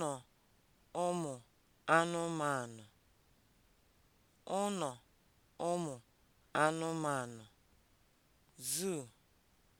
ụnọ ụmụ anụmanụ ụnọ ụmụ anụmanụ (Zoo)